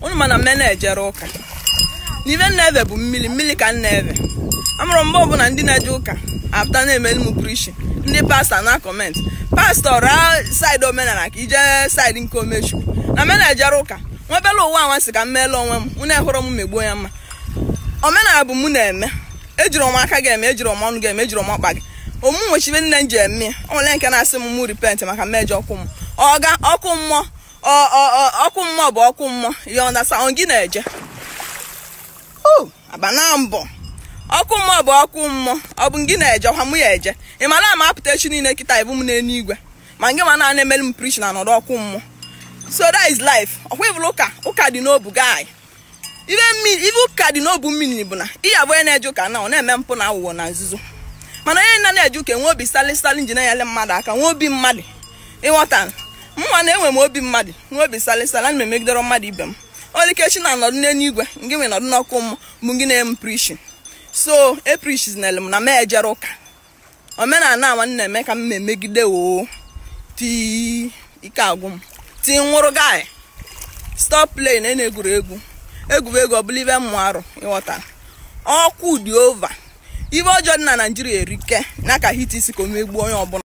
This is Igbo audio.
unu mana m na-ejere ụka n'ibe nna-eve bụ mmiri mmiri ka nna-eve amụrụ mgbe ọbụla ndị na-eje ụka apụta na-emeli m prishi ndị pastọ na kọmentị pastọ raa saịdị omenala ka ije saịdị nke omechukwu na menejere ụka nwebela ụwa anwansị ka m meela onwe m mụ na-ehụrụ m megbuo ya mma omenala bụ m na-eme ejiri m aka gị eme ejiri m ọnụ gị eme ejiri m ọkpa gị omume nwechibe nne m ji eme ya o nwere nke na-asị m mụ ripent maka mmejọ ọkụ m ọga ọkụ mmụọ ọkụ mmụọ bụ ọkụ mmụọ ya na saon gị na-eje oh, abana mbọ ọkụ mmụọ bụ ọkụ mmụọ ọ bụ gị na-eje ọkwa mụ ya eje ị mara ama apụta echi niile kịta ibu m igwe? ma ngị ma naanị emere m prish na nọrọ ọkụ mmụọ so that is life ọkwa ịbụrụ ụka ụka dị n'obu gaanyị ibe ụka dị n'obu mmiri bụ na ihe onye na-eje ụka na ọ na-eme mpụ na awụwọ na nzuzo mana onye na na-eje ụka enwe obi salị salị nji na-enyere mmadụ aka nwee obi mmadụ ịghọta mma na enwe m obi mmadụ nwee obi salịsala na m mmadụ ibe m olikechi na anọdụ nenu igwe ngị nwe nọdụ n'ọkụ m bụ gị na-eme prishi so eprishiznel m na m ejere ụka omenala awa na-eme ka m na-emegide oo tii ike agwụ m tii nwụrụ gị stop play na egwu egwuregwu ọ bụla ibe mmụ arụ ịghọtara ọkụ dị ova ibe ọjọọ dị na naijiria erike na aka hit isi ka o megbuo onye ọbụla